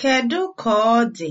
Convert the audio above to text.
Kedu ka ọ dị?